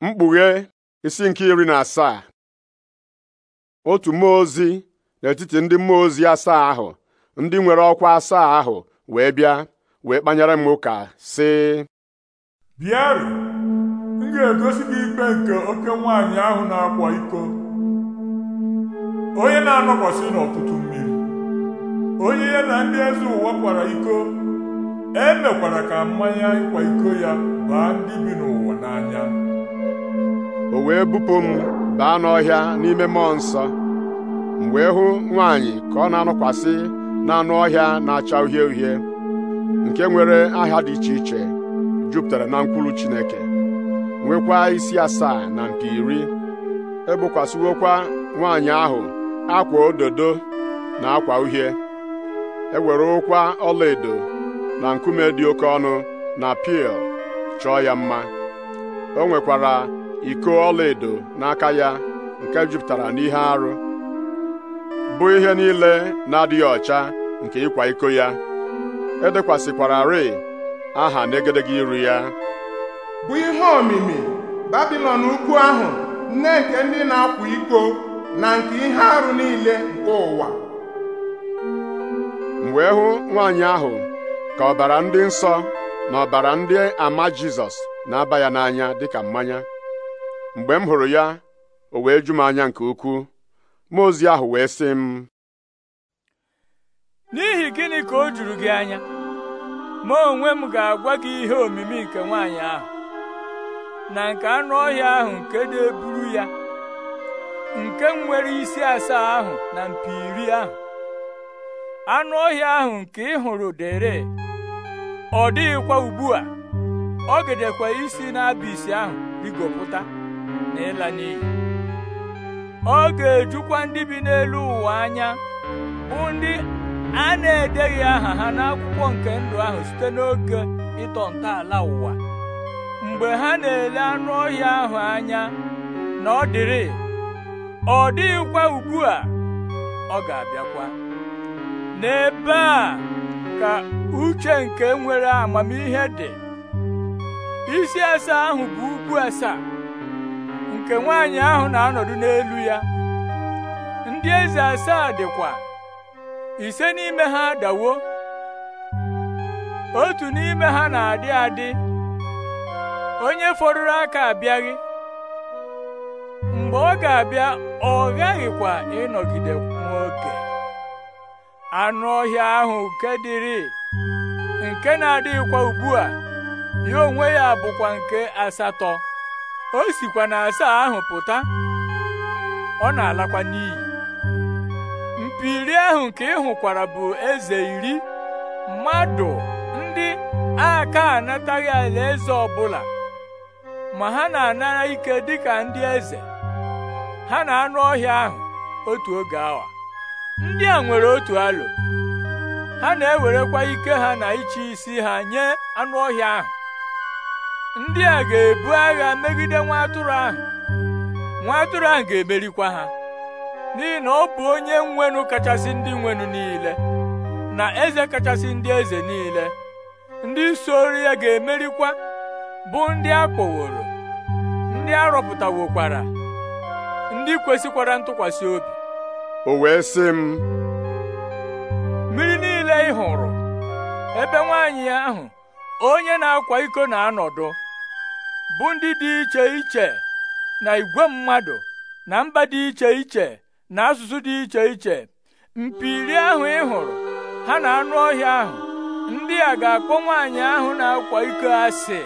mkpughe isi nke iri na asaa otu mmụọ ozi n'etiti ndị mmụọ ozi asaa ahụ ndị nwere ọkwa asaa ahụ wee bịa wee kpanyere m ụka sị bịaru m ga-egosi gị ikpe nke oke nwaanyị ahụ na-akwa iko onye na-anọkwasị n'ọtụtụ mmiri onye ya na ndị eze ụwa kwara iko emekwara ka mmanya ịkwa iko ya baa ndị bi n'ụwa n'anya o wee bupụ m baa n'ọhịa n'ime mmụọ nsọ m wee hụ nwaanyị ka ọ na-anọkwasị n'anụ ọhịa na-acha uhie uhie nke nwere aha dị iche iche jupụtara na mkwụrụ Chineke nwekwa isi asaa na mpi iri ebokwasịwokwa nwaanyị ahụ akwa ododo na akwa uhie ewere ụkwa ọlaedo na nkume dị oke ọnụ na pil chọọ ya mma o nwekwara iko ọlaedo n'aka ya nke jupụtara n'ihe arụ bụ ihe niile na-adịghị ọcha nke ịkwa iko ya edekwasịkwara rịị aha n'egedege iru ya bụ ihe omimi babilọn ukwu ahụ nne nke ndị na-akwa iko na nke ihe arụ niile nke ụwa m e hụ nwaanyị ahụ ka ọbara ndị nsọ na ọbara ndị ama Jizọs na-aba ya n'anya dịka mmanya mgbe m hụrụ ya o wee ju m anya nke ukwuu mmụọ ozi ahụ wee sị m n'ihi gịnị ka o juru gị anya ma onwe m ga-agwa gị ihe omimi nke nwaanyị ahụ na nke anụ ọhịa ahụ nke na-eburu ya nke nwere isi asaa ahụ na mpi iri ahụ anụ ọhịa ahụ nke ị hụrụ dere ọ dịghịkwa ugbu a ọ gedekwa isi n'abịsị ahụ rigopụta na n'iyi ọ ga-ejukwa ndị bi n'elu ụwa anya bụ ndị a na-edeghị aha ha n'akwụkwọ nke ndụ ahụ site n'oge ịtọ ntọala ụwa mgbe ha na-ele anụ ọhịa ahụ anya na ọ dịrị ọ dịghịkwa ugbu a ọ ga-abịakwa n'ebe a ka uche nke nwere amamihe dị isi ese ahụ bụ ugwu asaa nke nwanyị ahụ na-anọdụ n'elu ya ndị eze asaa dịkwa ise n'ime ha dawo otu n'ime ha na-adị adị onye fọdụrụ aka abịaghị mgbe ọ ga-abịa ọ ghaghịkwa ịnọgide nwoke anụ ọhịa ahụ nke dịrị nke na-adịghịkwa ugbu a ya onwe ya bụkwa nke asatọ o sikwa na asaa ahụ pụta ọ na-alakwa n'iyi mpi iri ahụ nke ị hụkwara bụ eze iri mmadụ ndị aka anataghị alaeze ọbụla ma ha na-anara ike dịka ndị eze ha na anụ ọhịa ahụ otu oge awa ndị a nwere otu alo ha na-ewerekwa ike ha na ịchị isi ha nye anụ ọhịa ahụ ndị a ga-ebu agha megide nwa atụrụ ahụ nwa atụrụ ahụ ga-emerikwa ha n'ihi na ọ bụ onye nwenụ kachasị ndị nwenụ niile na eze kachasị ndị eze niile ndị soro ya ga-emerikwa bụ ndị a kpọworo ndị a ndị kwesịkwara ntụkwasị obi o wee sị m mmiri niile ị hụrụ ebe nwaanyị ahụ onye na-akwa iko na-anọdụ bụ ndị dị iche iche na igwe mmadụ na mba dị iche iche na asụsụ dị iche iche mpi iri ahụ ị hụrụ ha na anụ ọhịa ahụ ndị a ga-akpọ nwaanyị ahụ na-akwa iko asị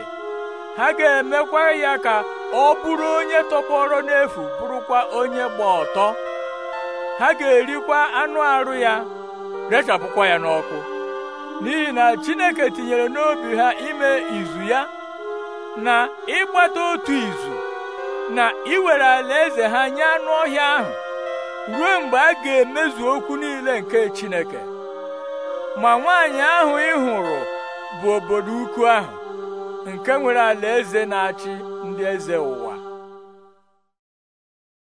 ha ga-emekwa ya ka ọ bụrụ onye tọpọrọ n'efu bụrụkwa onye gba ọtọ ha ga-erikwa anụ arụ ya rechapụkwa ya n'ọkụ n'ihi na Chineke tinyere n'obi ha ime izu ya na ịgbata otu izu na iwere alaeze ha nye anụ ọhịa ahụ ruo mgbe a ga-emezu okwu niile nke Chineke ma nwaanyị ahụ ị hụrụ bụ obodo ukwu ahụ nke nwere alaeze na-achị ndị eze ụwa